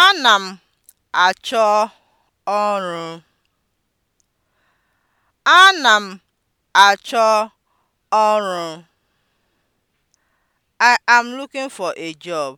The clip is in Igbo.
Ana m achọ ọrụ. Ana m achọ ọrụ. I am looking for a job.